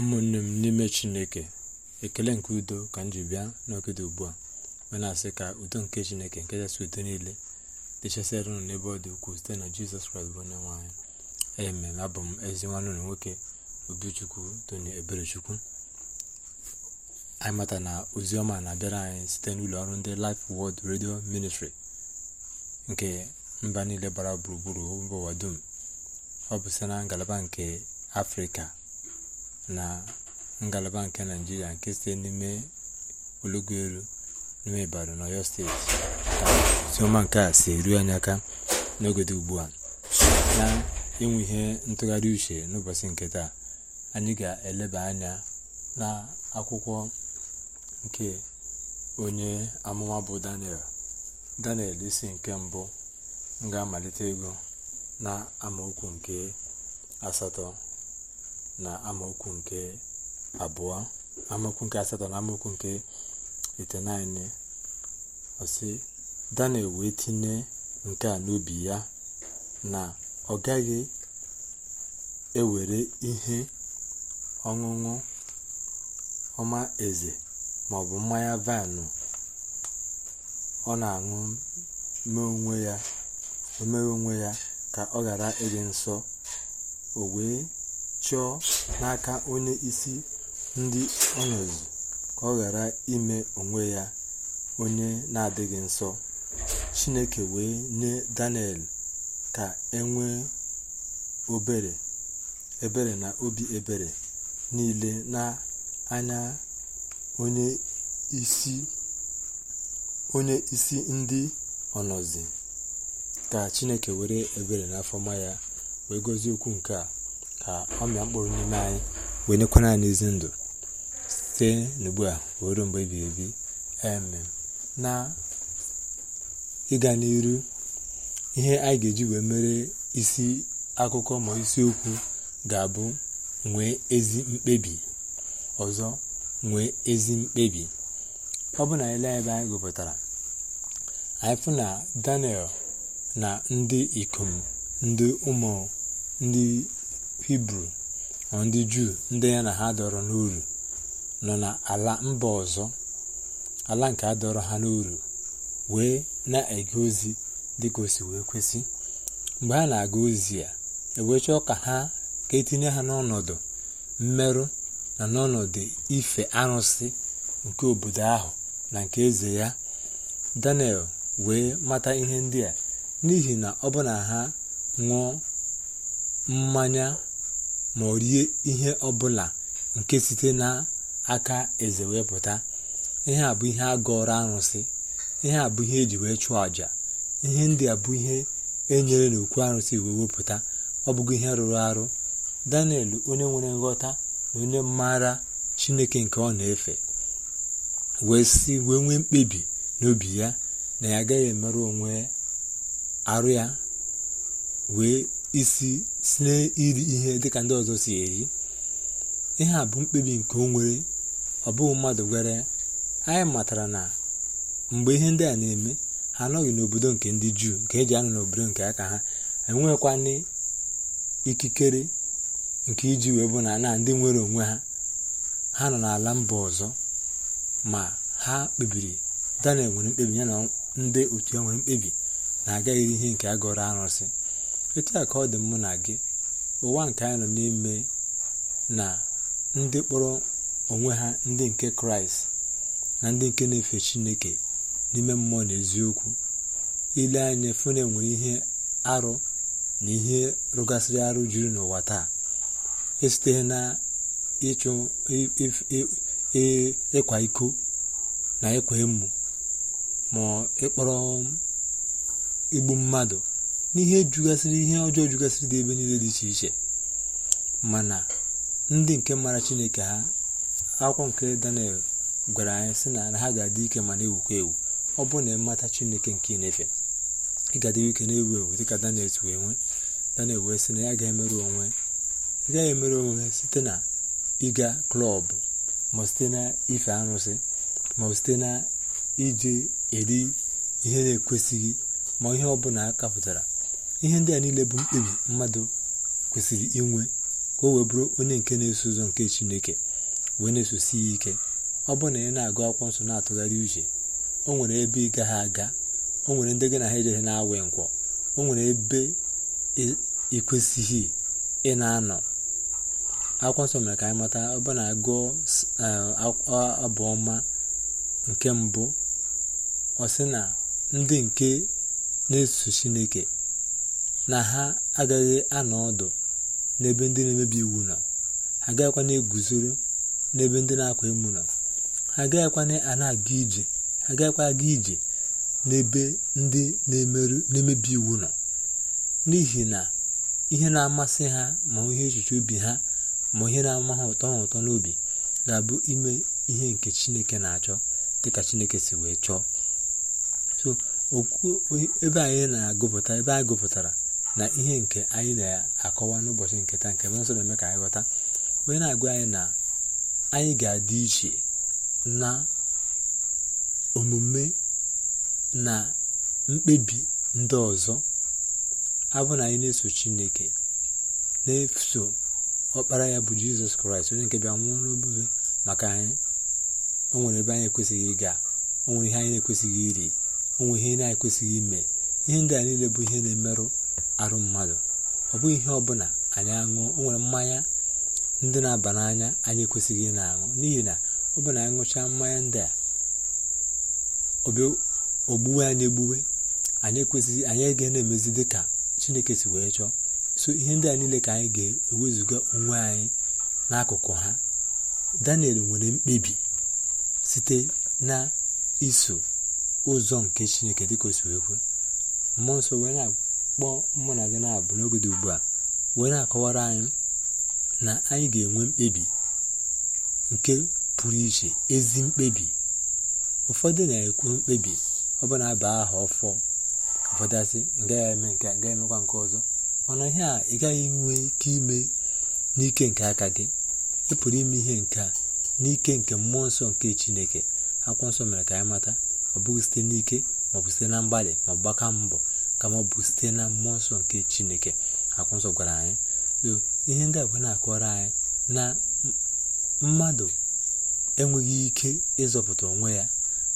ụmụnne m n'ime chineke ekele nke udo ka m ji bịa n'ogede ugbu a wee na-asị ka udo nke chineke nke kachasị udo niile dịchasịara ụnụ n'ebe ọ dị ukwuu site na jizọs kraịst bụ onye nwanyị eme abụ m ezi nwanne ụlọ nwoke obichukwu tony eberechukwu anyị mata na ozi ọma na-abịara anyị site n'ụlọ ọrụ ndị Life Word redio ministri nke mba niile gbara gburugburu mba ụwa dum ọ bụ site na ngalaba nke afrịka na ngalaba nke naijiria nke site n'ime ologu elu n'ime ibadan na steeti ka oziọma nke a si eru anya aka n'ogede ugbu a na inwe ihe ntụgharị uche n'ụbọchị nke taa anyị ga-eleba anya na akwụkwọ nke onye amụma bụ daniel daniel isi nke mbụ ga-amalite ego na amaokwu nke asatọ na amaokwu nke abụọ amaokwu nke asatọ na amaokwu nke itenaine ọsị daniel wee tinye nke a n'obi ya na ọ gaghị ewere ihe ọṅụṅụ ọma eze maọbụ mmanya vaịnụ ọ na-aṅụ omee onwe ya ka ọ ghara ịdị nsọ o wee chọọ n'aka onye isi ndị ọnọdụ ka ọ ghara ime onwe ya onye na-adịghị nsọ chineke wee nye daniel ka enwee nwee ebere na obi ebere niile na anya onye isi ndị ọnọzi ka chineke were ebere n'afọma ya wee gọzie okwu nke a ka ọ mịa mkpụrụ n'ime anyị wee nyekwana anyị ezi ndụ site n'ugbu a wee ruo mgbe ebighị ebi na ịga n'iru ihe anyị ga-eji wee mere isi akụkọ ma isiokwu ga-abụ nwee ezi mkpebi ọzọ nwee ezi mkpebi ọ bụ na ele ebe anyị gụpụtara anyị fụ na daniel na ndị ikom ndị ụmụ ndị hibru ma ndị juu ndị ya na ha dọrọ n'uru nọ na ala mba ọzọ ala nke a dọrọ ha n'uru wee na-ege ozi dịka osi wee kwesị mgbe ha na-aga ozi ya ewee chọọ ka ha ka etinye ha n'ọnọdụ mmerụ na n'ọnọdụ ife arụsị nke obodo ahụ na nke eze ya daniel wee mata ihe ndị a n'ihi na ọ bụ na ha ṅụọ mmanya ma ọ rie ihe ọbụla nke site n'aka eze wee ihe a bụ ihe a gọrọ arụsị ihe a bụ ihe eji wee chụọ àjà ihe ndị a bụ ihe enyere n'okwu arụsị wee wepụta ọ bụghị ihe rụrụ arụ daniel onye nwere nghọta na onye maara chineke nke ọ na-efe wee si wee nwee mkpebi n'obi ya na ya agaghị emerụ onwe arụ ya wee isi si n'iri ihe dịka ndị ọzọ si eri ihe a bụ mkpebi nke o nwere ọ bụghị mmadụ gwere anyị matara na mgbe ihe ndị a na-eme ha anọghị n'obodo nke ndị juu nke eji anọ n'obodo nke aka ha enweghịkwana ikikere nke iji wee bụ na na ndị nwere onwe ha ha nọ n'ala mba ọzọ ma ha kpebiri daniel nwere mkpebi ya na ndị otu ya nwere mkpebi na iri ihe nke agọrọ arụsị etu a ka ọ dị mụ na gị ụwa nke anyị nọ n'ime na ndị kpọrọ onwe ha ndị nke kraịst na ndị nke na-efe chineke n'ime mmụọ na eziokwu ile anya fune nwere ihe arụ na ihe rụgasịrị arụ juru n'ụwa taa esite na ịchụ ịkwa iko na ịkwa emu ma ịkpọrọ igbu mmadụ n'ihe jugasịrị ihe ọjọọ jugasịrị dị ebe niile dị iche iche mana ndị nke mara chineke ha akwụkwọ nke daniel gwara anyị sị na ha ga-adị ike ma na-ewukwa ewu ọ bụ na ịmata chineke nke na-efe ị ga-adị ike na-ewu ewu dịka daniel wee nwee daniel wee sị na ya ga-emerụ onwe gaghị emerụ onwe site na ịga klọbụ ma site na ife arụsị ma site na iji eri ihe na-ekwesịghị ma ihe ọ bụla a kapụtara ihe ndị a niile bụ mkpebi mmadụ kwesịrị inwe ka o wee bụrụ onye nke na-eso ụzọ nke chineke wee na-esosi ya ike ọ bụrụ na ị na-agụ akwụkwọ nsọ na-atụgharị uche o nwere ebe ị gaghị aga o nwere ndị gị na ha ejeghị na-awụ nkwọ o nwere ebe ị kwesịghị ị na-anọ akwụkwọ nsọ mere ka anyị mata ọ bụ na agụọ eh, abụọma nke mbụ ọ sị na ndị nke na-eso chineke na ha agaghị anọ ọdụ n'ebe ndị na-emebi iwu nọ ha agaghịkwa na-eguzoro n'ebe ndị na-akwa emu nọ ha agaghịkwa a na-aga ije ha agaghịkwa aga ije n'ebe ndị na-emebi iwu nọ n'ihi na ihe na-amasị ha ma ihe echiche obi ha ma ihe na-ama ha ụtọ ha ụtọ n'obi ga-abụ ime ihe nke chineke na-achọ dịka chineke si wee chọọ so okwu ebe anyị na-agụpụta ebe anyị gụpụtara na ihe nke anyị na-akọwa n'ụbọchị nke taa nke nsọ na-eme ka anyị ghọta onye na-agwa anyị na anyị ga-adị iche na omume na mkpebi ndị ọzọ abụ na anyị na-eso chineke na-eso ọkpara ya bụ jizọs kraịst onye nke bịa nwụọ n'obodo maka anyị o nwere ebe anyị ekwesịghị ịga o nwere ihe anyị na-ekwesịghị iri o nwere ihe anyị na-ekwesịghị ime ihe ndị a niile bụ ihe na-emerụ arụ mmadụ ọ bụghị ihe ọbụla anyị aṅụ o nwere mmanya ndị na-aba n'anya anyị ekwesịghị ị na-aṅụ n'ihi na ọ bụ na anyị ṅụchaa mmanya ndị a ogbuwe anyị egbuwe anyị ekwesịghị anyị ga na-emezi dị ka chineke si wee chọọ so ihe ndị a niile ka anyị ga-ewezuga onwe anyị n'akụkụ ha daniel nwere mkpebi site na iso ụzọ nke chineke dịka o si wee kwe mmụọ nsọ wee na kpọọ mụ na gị na-abụ n'oge dị ugbu a wee na-akọwara anyị na anyị ga-enwe mkpebi nke pụrụ iche ezi mkpebi ụfọdụ na-ekwu mkpebi ọ bụ na aha ọfọ ụfọdụ asị gaghị eme nke gaghị emekwa nke ọzọ mana ihe a ị gaghị enwe ike ime n'ike nke aka gị ị pụrụ ime ihe nke a n'ike nke mmụọ nsọ nke chineke akwụkwọ nsọ mere ka anyị mata ọ bụghị site n'ike maọbụ site na mgbalị ma ọ gbaka mbọ ka ma ọ bụ site na mmụọ nsọ nke chineke akwụnsọ nsọ gwara anyị ihe ndị abụọ na-akọrọ anyị na mmadụ enweghị ike ịzọpụta onwe ya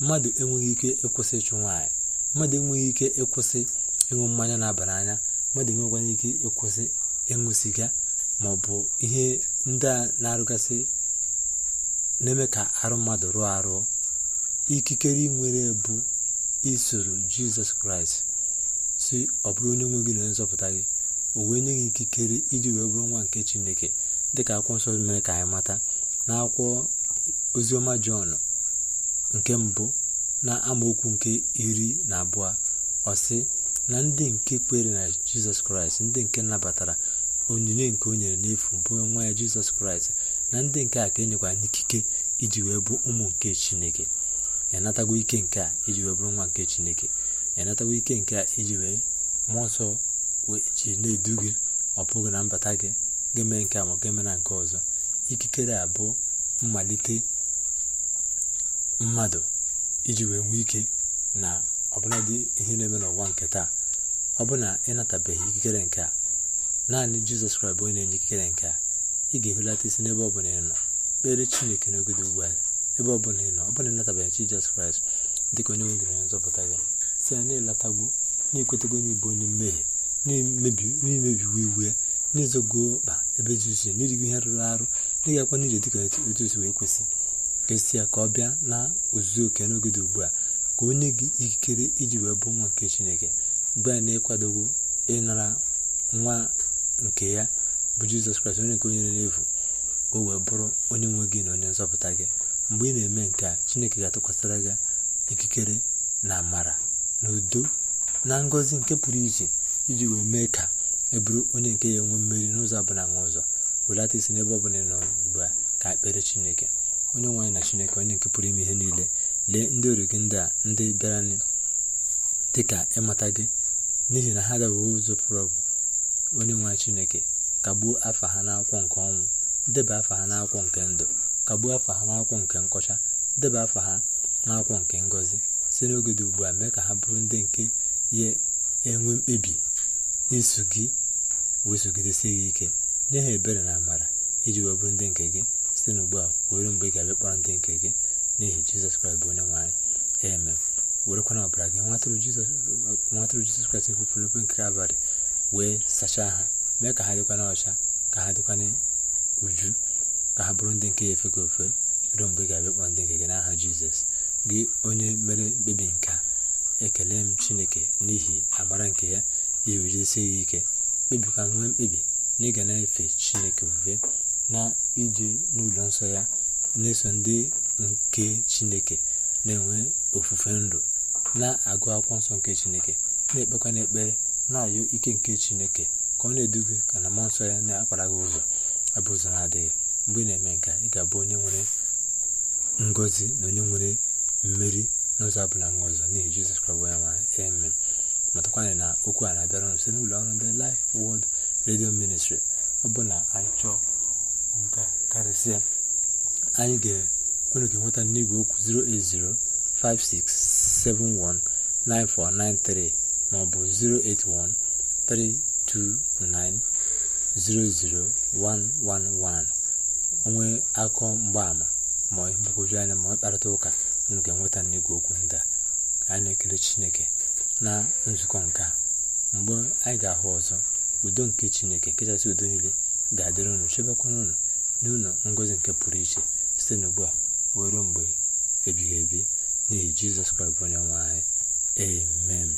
mmadụ enweghị ike ịkwụsị ịchụ nwaanyị mmadụ enweghị ike ịkwụsị ịṅụ mmanya na-aba n'anya mmadụ enweghịkwanye ike ịkwụsị ịṅụ siga ma ọ bụ ihe ndị a na-arụgasị na-eme ka arụ mmadụ rụọ arụ ikikere nwere bụ isoro jizọs kraịst si ọ bụrụ onye nwe gị na onye nzọpụta gị o wee nye gị ikikere iji wee bụrụ nwa nke chineke dịka akwụkwọ nsọ mere ka anyị mata na akwụkwọ oziọma jọn nke mbụ na amaokwu nke iri na abụọ ọsị na ndị nke kwere na jizọs kraịst ndị nke nabatara onyinye nke o nyere n'efu bụ nwa ya jizọs kraịst na ndị nke a ka e nyekwara n'ikike iji wee bụ ụmụ nke chineke ya natago ike nke a iji wee bụrụ nwa nke chineke ịnatawa ike nke a iji wee mmụọ nsọ ji na-edu gị ọ bụghị na mbata gị ga mee nke a ma ga-eme na nke ọzọ ikikere a bụ mmalite mmadụ iji wee nwee ike na ọbụladị ihe na-eme n'ụwa nke taa ọ bụ na ịnatabeghị ikikere nke a naanị jizọs kraịst bụ onye na-enye ikikere nke a ị ga-ehulata isi n'ebe ọbụla ị nọ kpere chineke n'oge ugbu a ebe ọbụla ị nọ ọ bụla ịnatabeghị jizọs kraịst dịka onye nwegịrị onye nzọpụta gị si ya na-elatagbo na-ekwetago n'ibụ onye mmehie n'imebiwo iwu ya n'izogo mkpa ebe zisi n'irigo ihe rụrụ arụ n'ịgakwa n'ije dịka otu osi wee kwesị ka ya ka ọ bịa na ozuzu oke n'oge dị ugbu a ka onye gị ikikere iji wee bụ nwa nke chineke mgbe a na-ekwadogo ịnara nwa nke ya bụ jizọs kraịst onye nke onye n'efu ka o wee bụrụ onye nwe gị na onye nzọpụta gị mgbe ị na-eme nke a chineke ga-atụkwasịra gị ikikere na amara n'udo na ngọzi nke pụrụ iche iji wee mee ka e bụrụ onye nke ya enwe mmeri n'ụzọ abụla nwa ụzọ welata isi n'ebe ọbụla nọ ugbu a ka ekpere chineke onye nwaanyị na chineke onye nke pụrụ ime ihe niile lee ndị ori gị ndị a ndị bịara dị ka ịmata gị n'ihi na ha adabeghị ụzọ pụrụ onye nwaanyị chineke kagbuo afọ ha n'akwụkwọ nke ọnwụ deba afọ ha n'akwụkwọ nke ndụ kagbuo afọ ha n'akwụkwọ nke nkọcha deba afa ha n'akwụkwọ nke ngọzi site n'oge dị ugbu a mee ka ha bụrụ ndị nke ya enwe mkpebi iso gị wee gị ike nye ha ebere na amara iji wee bụrụ ndị nke gị site n'ugbu a were mgbe ị ga-abịa kpọrọ ndị nke gị n'ihi jizọs kraịst bụ onye nwaanyị eme werekwana ọbara gị nwa tụrụ jizọs kraịst nkwupụrụ n'okwu nke abalị wee sachaa ha mee ka ha na ọcha ka ha dịkwa n'uju ka ha bụrụ ndị nke ya efega ofe ruo mgbe ị ga-abịa kpọrọ ndị nke gị n'aha jizọs gị onye mere mkpebi nke ekele m chineke n'ihi amara nke ya iwejisi gị ike kpebikwa nwee mkpebi na ịga na-efe chineke ofufe na ije n'ụlọ nsọ ya na-eso ndị nke chineke na-enwe ofufe ndụ na-agụ akwụkwọ nsọ nke chineke na-ekpekwa n'ekpere na ayụ ike nke chineke ka ọ na-eduga ka na mmụọ nsọ ya na-akpara gị ụzọ abụ ụzọ na-adịghị mgbe ị na-eme nka ị ga-abụ onye nwere ngozi na onye nwere mmeri n'ụzọ abụla nwa ọzọ n'ihi jizọs kraịst onye nwanyị amen matakwana na okwu a na-abịara nso n'ụlọ ọrụ ndị Life Word redio Ministry ọ bụ na anyị chọọ nka karịsịa anyị unu ga-enweta n'igwe okwu 08056719493 maọbụ 08132900111 onwe akọ mgbaama ma ihe mgbagwoju anya ma ọ kparịta ụka unu ga-enweta n'igwe okwu ndị a anyị na-ekele chineke na nzukọ nke mgbe anyị ga-ahụ ọzọ udo nke chineke nkechasị udo niile ga-adịrị unu chebekwana unu n'ụlọ ngozi nke pụrụ iche site n'ugbu a wee mgbe ebighị ebi n'ihi jizọs kraịst bụ onye nwe anyị amen